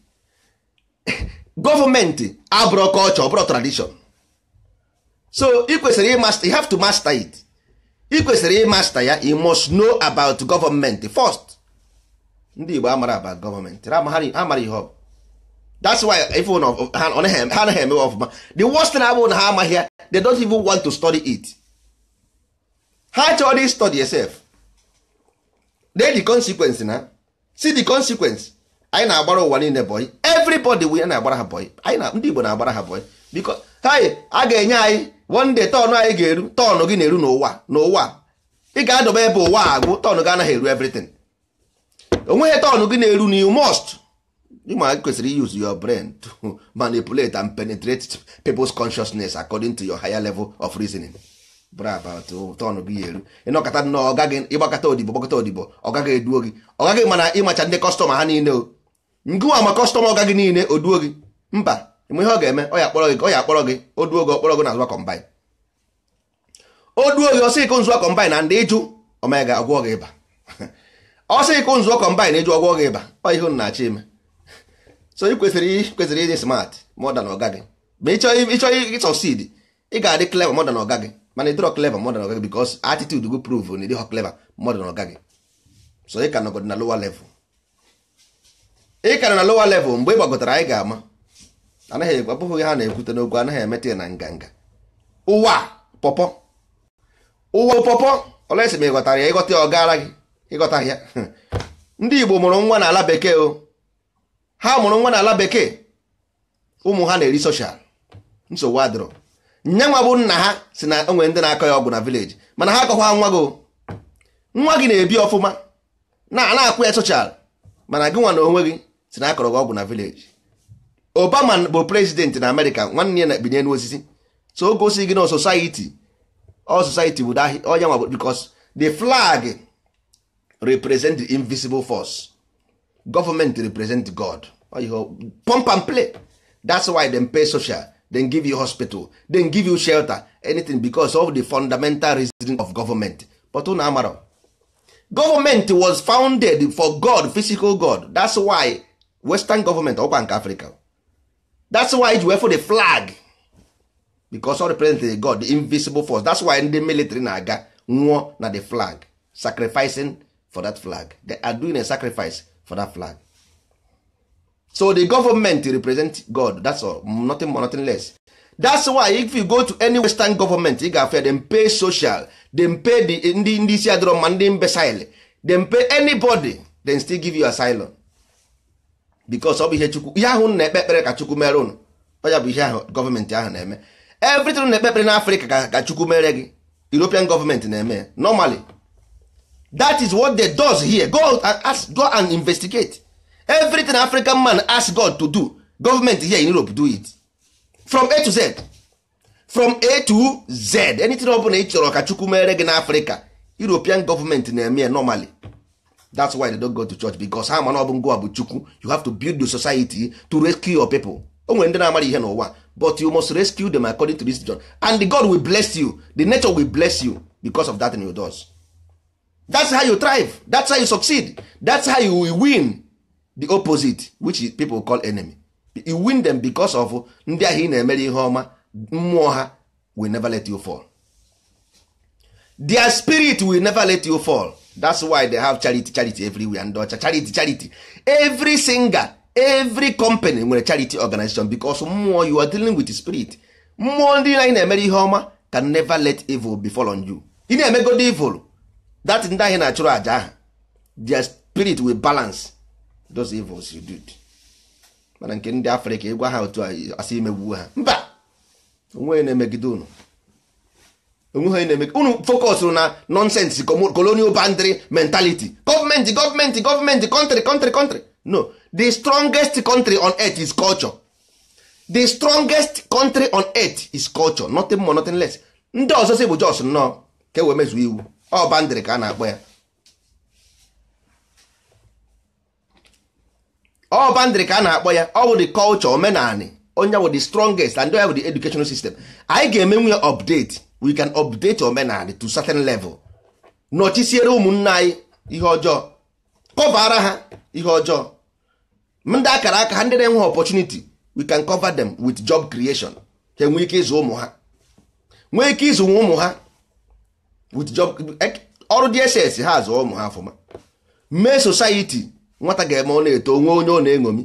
gọọmenti abụrụ culture ọbụrụ tradition so ị kwesịrị ịmasta you have to master it ị kwesịrị ịmasta ya you must know about government first ndị Igbo amara about government amara ihe ọ that's why if ha anaghị emewe ọfụma the worst thing abụ na ha amaghị ya they don't even want to study it ha chọrọ study yourself they the consequence na see the consequence anyị na-agbara ụwa niile bọị everybody we na-agbara ha bọị anyị na ndị Igbo na-agbara ha bọị biko anyị a ga-enye anyị one day tọnụ anyị ga-eru tọnụ gị na-eru n'ụwa n'ụwa ị ga-adọba ebe ụwa agwụ tọnụ gị anaghị eru everything onweghị tọnụ gị na-eru na you must ma kwesịrị use your brain to manipulate and penetrate people's consciousness according to your higher level of reasoning tọnụ gị eru ịnọkọta nnọọ ọgaghị ịgbakọta odibo gbakọta odibo ọ gaghị eduo gị ọ gaghị mana ịmacha ndị kọstọma ha niile o ngụwa ma kọstọma ọga gị niile o duo gị mba ma ihe ọ ga-eme ọ ya akpọrọ gị ọ ya akpọrọ gị o duo gị ọkpọrọ gị na azụwa o duo gị ọsị ịkụ nzụwa kọmbaịn na ndị ịjụ ọmaga agwọ gị ịba ọsị ịkụ nzụọ kọmbaịn ịjụ ọgwọ gị ịba ọ ihe na-achọ ime so ị kwesịrị kwesịrị ịdị smart modern ọga gị ma ịchọ ịsọsid ị ga-adị clever modern ọga gị mana ịdịrọ clever modern ọga gị because attitude gị prove na ịdịghọ clever modern ọga gị so ị ka nọgọdị na lower level ị kara na lowa level mgbe ị gbagotara anyị ga-ama anaghị abụghị ha na-ekwute n'okwu anaghị emeta na nganga ụwa pọpọ ụwa pọpọ olesi ma ịghọtara ya ịghọta ya gị ịghọta ya ndị Igbo mụrụ nwa n'ala bekee o ha mụrụ nwa n'ala bekee ụmụ ha na-eri soshal nsogbu adịrọ nye nwa bụ nna ha si na onwe ndị na-akọ ya ọgwụ na vileji mana ha akọkwa nwa gị nwa gị na-ebi ọfụma na-ana akwụ ya soshal mana gị nwa na onwe gị si na akọrọ ọgwụ na village obama bụ president na amerịka nwanne ya na bi so o gosi gị na society all society bụ onye nwa because the flag represent the invisible force government represent god pump and play that's why dem pay social dem give you hospital dem give you shelter anything because of the fundamental reason of government but unu amara government was founded for god physical god that's why western government ọkwa nke africa that's why ji wefụ the flag because ọ represent the god the invisible force that's why ndị military na-aga nwụọ na the flag sacrificing for that flag they are doing a sacrifice for that flag so the government represent god that's all nothing more nothing less that's why if you go to any western government ị ga-afia them pay social them pay the ndị ndị isi adịrọ mma ndị imbecile them pay anybody then still give you asylum because ọ bụ ihe chukwu ihe ahụ na-ekpe ekpere ka chukwu mere unu ọya bụ ihe ahụ gọọmentị ahụ na-eme everything na-ekpe ekpere ka chukwu mere gị european gọọmentị na-eme ya normally that is what they does here go and ask go and investigate everything african man ask god to do government here in europe do it from a to z from a to z anything ọ bụla ị chọrọ ka chukwu mere gị n'afrịka european gọọmentị na-eme ya normally that's why they don't go to church because ha mana ọbụ ngwa bụ chukwu you have to build the society to rescue your people o nwere ndị na-amara ihe n'ụwa but you must rescue them according to this john and the god will bless you the nature will bless you because of that in your does that's how you thrive that's how you succeed that's how you win the opposite which people call enemy you win them because of ndị ahụ ị na-emere ihe ọma mmụọ ha will never let you fall their spirit will never let you fall that's why they have charity charity everywhere ndị ọcha uh, charity charity every singer every company nwere charity organization because mmụọ you are dealing with spirit mmụọ ndị anyị na-emere ihe ọma can never let evil fall on you ị na-emegodi evil that ndị anyị na-achụrụ aja ahụ their spirit will balance those evils you did mana nke ndị africa ịgwa ha otu asị imegbuo ha mba onwe na-emegide unu onweghị na-eme unu fọkọsụrụ na nonsense colonial boundary mentality gọọmenti gọọmenti country country country no the strongest country on earth is culture the strongest country on earth is culture nothing more nothing less ndị ọzọ si bụ jos nnọọ ka ewee mezuo iwu ọ bandịrị ka a na-akpọ ya ọ bandịrị ka a na-akpọ ya ọ bụ the culture omenani onye bụ the strongest and onye bụ the educational system anyị ga-emenwu ya update we can update omenala to certain level nọchisiere ụmụnna anyị ihe ọjọọ kọvara ha ihe ọjọọ ndị akara aka ha ndị na-enwe opportunity we can cover them with job creation ka nwee ike ịzụ ụmụ ha nwee ike ịzụ ụmụ ha with job e, ọrụ DSS ha azụ ụmụ ha ọfụma mee society nwata ga-eme ọ na-eto onwe onye ọ na-eṅomi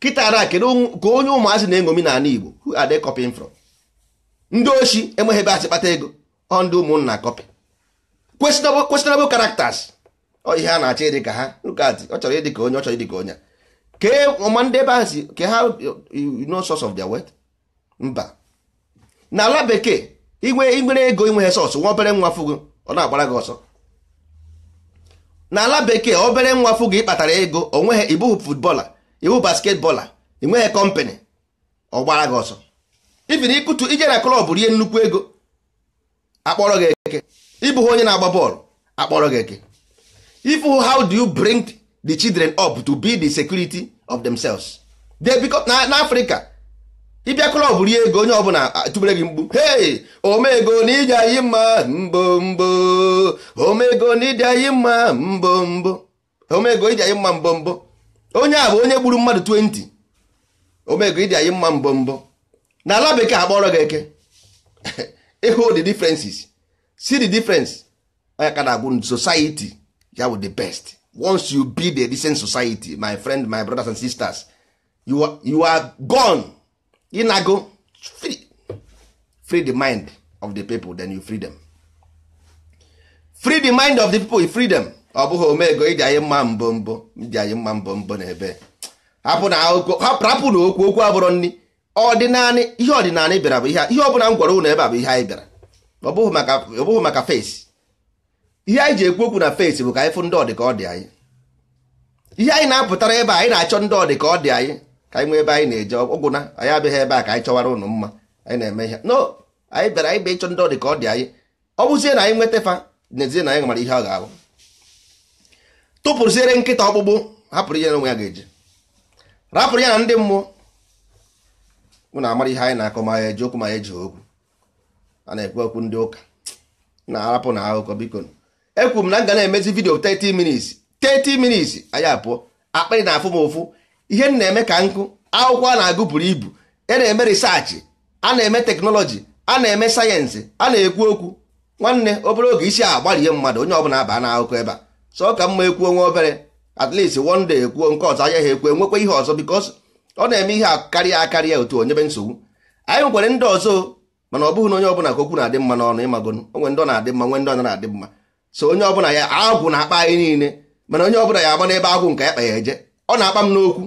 kịtara kedu ka onye ụmụazị na-eṅomi n'ala Igbo who are they copying from ndị oshi enweghị ebe asị kpata ego ọ ndị ụmụnna kọpị kwesịnabụ characters ọ ihe a na-achọ ịdị ka ha lukadị ọ chọrọ ịdị ka onye ọ chọrọ ịdị ka onye kee ọma ndị ebe ahụ si ka ha you know source of their wealth mba n'ala bekee inwe nwere ego inweghị sọsụ nwa obere nwa fụgo ọ na-agbara gị ọsọ n'ala bekee obere nwa fụgo ịkpatara kpatara ego onweghị ibu futbọla ibu basketbọla enweghị kọmpanị ọ gbara gị ọsọ ibi na ịkụtu ije na klọb rie nnukwu ego akpọrọ gị eke ịbụghị onye na-agba bọọlụ akpọrọ gị eke if how do you bring the children up to be the security of themselves they become na Africa ịbịa klọb rie ego onye ọbụla tụbere gị mgbu hey omego na ije anyị mma mbo mbo omego na ije anyị mma mbo mbo omego ije anyị mma mbo mbo onye a bụ onye gburu mmadụ 20 omego ije anyị mma mbo mbo na ala bekee akpọrọ gị eke ịhụ the differences see the difference onye ka na society ya wụ the best once you be the decent society my friend my brothers and sisters you are, you are gone ịnago free free the mind of the people then you free them free the mind of the people you free them ọ bụghị omego iji anyị mma mbọ mbọ iji anyị mma mbọ mbọ na ebe hapụ na okwu okwu abụrọ nri ọdịnanị ihe ọdịnanị bịara bụ ihe ọbụla m gwara ụnụ ebe a bụ ihe anyị bịara ọ bụghị maka fesi ihe anyị ji ekwu okwu na fesi bụ ka anyị fụ ndị ọdị ka ọ dị anyị ihe anyị na-apụtara ebe anyị na-achọ ndị ọdị ka ọ dị anyị ka anyị nwee ebe anyị na-eje ọgwụna anyị abịaghị ebe a ka anyị chọwara ụnụ mma anyị na-eme ihe no anyị bịara anyị bịa ịchọ ndị ọdị ka ọ dị anyị ọ bụzie na anyị nweta fa n'ezie na anyị mara ihe ọ ga-abụ tụpụrụziere nkịta ọkpụkpụ hapụrụ ihe na onwe ya ga-eji rapụrụ ya na ndị mmụọ mụ na amara ihe anyị na-akọ ma ya eji okwu ma ya eji okwu a na-ekwu okwu ndị ụka na-arapụ na akụkọ biko ekwu m na m ga na-emezi vidio 30 minutes 30 minutes anyị apụọ akpịrị na-afụ m ụfụ ihe m na-eme ka nkụ akwụkwọ a na-agụ buru ibu e na-eme risaachị a na-eme teknọlọji a na-eme sayensị a na-ekwu okwu nwanne obere oge isi ihe mmadụ onye ọbụla aba na akụkọ ebe a sọ ka mma ekwuo nwa obere at least ekwuo nke ọzọ anya ha ekwuo enwekwa ihe ọzọ because ọ na-eme ihe karịa akarịa otu onyebe nsogbu anyị nwekwere ndị ọzọ mana ọ bụghị na onye ọbụla ka okwu na-adị mma n'ọnụ ịmagonu onwe ndị ọ na-adị mma nwe ndị ọ na-adị mma so onye ọbụla ya agwụ na-akpa anyị niile mana onye ọbụla ya agba n'ebe agwụ nke ya kpa ya eje ọ na-akpa m n'okwu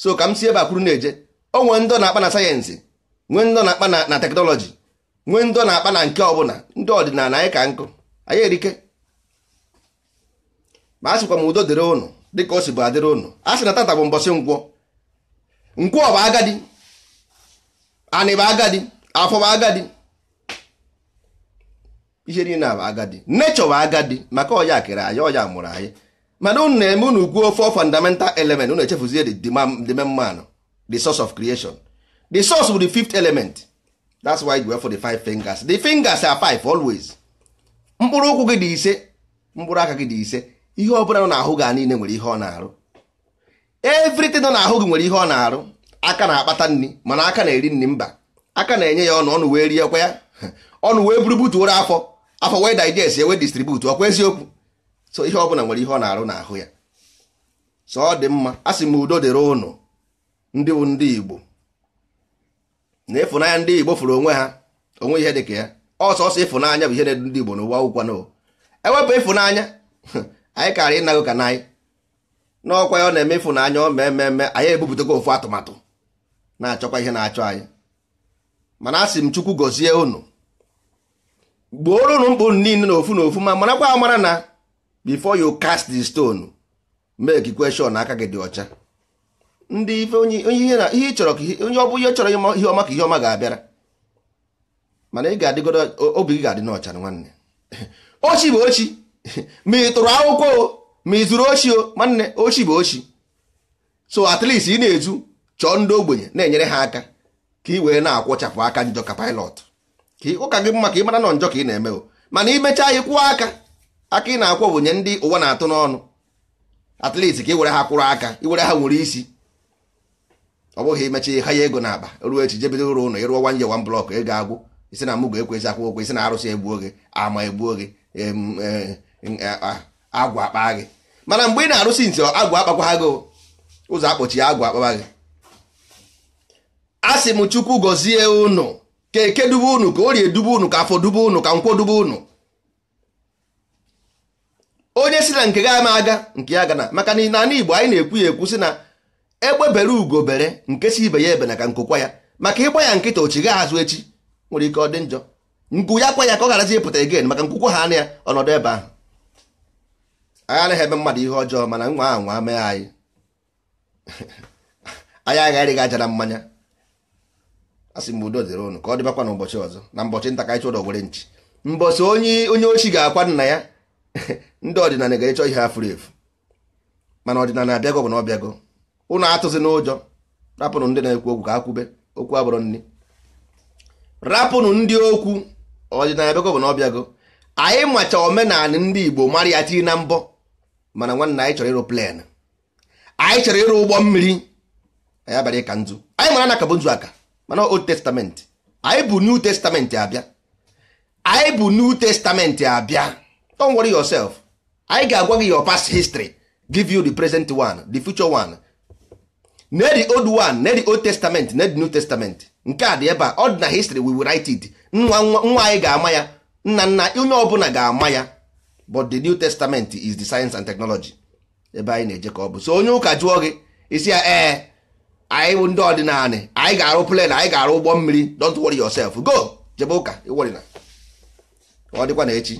so ka m si ebe akwuru na-eje onwe ndị ọ na-akpa na sayensị nwee ndị ọ na-akpa na teknọlọji nwee ndị ọ na-akpa na nke ọbụla ndị ọdịnala anyị ka nkụ anyị erike ma a sịkwa m udo dịrị ụnụ dịka o si bụ adịrị ụnụ a sị na tata bụ mbọsị nkwọ nkwọ bụ agadi anị bụ agadi afọ bụ agadi ihe niile bụ agadi nechọ bụ agadi maka ọya kere anyị ọya mụrụ anyị mana unu na-eme unu gwuo fọ fundamental element unu echefuzie the main man the source of creation the source bụ the fifth element that's why you for the five fingers the fingers are five always mkpụrụ ụkwụ gị dị ise mkpụrụ aka gị dị ise ihe ọ bụla nọ n'ahụ gị niile nwere ihe ọ na-arụ everything nọ n'ahụ gị nwere ihe ọ na-arụ aka na-akpata nri mana aka na-eri nri mba aka na-enye ya ọnụ ọnụ wee kwa ya ọnụ wee buru butuoro afọ afọ wee digest wee distribute ọkwa eziokwu so ihe ọbụla nwere ihe ọ na-arụ n'ahụ ya so ọ dị mma a sị m udo dịrị ụnụ ndị bụ ndị Igbo na ịfụnanya ndị Igbo fụrụ onwe ha onwe ihe dịka ya ọsọsọ ịfụnanya bụ ihe na-edu ndị Igbo n'ụwa ụkwa n'ụwa ewepụ ịfụnanya anyị karịa ịnago ka na anyị n'ọkwa ya ọ na-emefu na anya ọ mee mmemme anyị ebupụtago ofu atụmatụ na-achọkwa ihe na-achọ anyị mana asị m chukwu gọzie unu gbuoro unu mkpụ niile na n'ofu ma marakwa amara na before you cast the stone make question aka gị dị ọcha ndị ife onye ihe chọrọ onye ọ ihe chọrọ ihe ọma ka ihe ọma ga-abịara mana ị ga-adịgodo obi gị ga-adị n'ọcha nwanne ochi bụ ochi ma ị tụrụ akwụkwọ ma izuru ochi nwanne ochi bụ ochi so at least ị na-ezu chọọ ndị ogbenye na-enyere ha aka ka ị wee na-akwụchapụ aka njọ ka pilot ka ụka gị mma ka ị mara nọ njọ ka ị na-eme o mana imechaa ị kwụọ aka aka ị na-akwụ ogbenye ndị ụwa na-atụ n'ọnụ at least ka ị were ha kwụrụ aka were ha nwere isi ọ bụghị imecha ha ya ego n'akpa ruo echi jebido ụlọ ụlọ ịrụọ wanje wan blọk ego agwụ isi na mụ ga-ekwezi akwụkwọ isi na arụsị egbuo gị ama egbuo gị agwa akpa gị mana mgbe ị na-arụsi nti agwụ akpakwaghago ụzọ akpọchi agwụ akpagbaghị a sị m chukwu gọzie unu ka eke dube unu ka orie dube unu ka afọ dube unu ka nkwo dube unu onye si na nke ga ama aga nke ya gana maka na n'ala igbo anyị na-ekwu ya ekwu si na egbebere ugo bere nke si ibe ya ebe na ka nkokwa ya maka ịgba ya nkịta ochigha azụ echi nwere ike ọ dị njọ nkụ ya kwa ya ka ọ gharazi ịpụta egen maka nkwụkwọ ha anya ya ọnọdụ ebe ahụ anyị anaghị eme mmadụ ihe ọjọọ mana nwa ahụ nwa mee anyị anyị agharịghị aja na mmanya a sị m udo dịrị ụnụ ka ọ dịbakwa n'ụbọchị ọzọ na mbọchị nta ka anyị chọrọ were nchi mbọchị onye onye ochi ga-akwa nna ya ndị ọdịnala ga-echọ ihe ha furu efu mana ọdịnala abịago bụ na ọ bịago ụnụ atụzi n'ụjọ rapụnụ ndị na-ekwu okwu ka ha kwube okwu abụrụ nri rapụnụ ndị okwu ọdịnala abịago bụ na ọ anyị macha omenala ndị Igbo mara ya tinye na mbọ mana nwanne anyị chọrọ ịrụ plen anyị chọrọ ịrụ ụgbọ mmiri anyị abalị ịka nzu anyị mara na bụ nzu aka mana old testament anyị bụ new testament abịa anyị bụ new testament abịa don worry yourself anyị ga-agwa gị your past history give you the present one the future one ne the old one ne the old testament ne the new testament nke a dị ebe a ọ dị na history we will write nwa nwa anyị ga-ama ya nna nna onye ọbụla ga-ama ya but the new testament is the science and technology ebe anyị na-eje ka ọ bụ so onye ụka jụọ gị isi ya ee eh, anyị ndị ọdịnala anyị ga-arụ plen anyị ga-arụ ụgbọ mmiri don't worry yourself go jebe ụka ịwọrịna ọ dịkwa na echi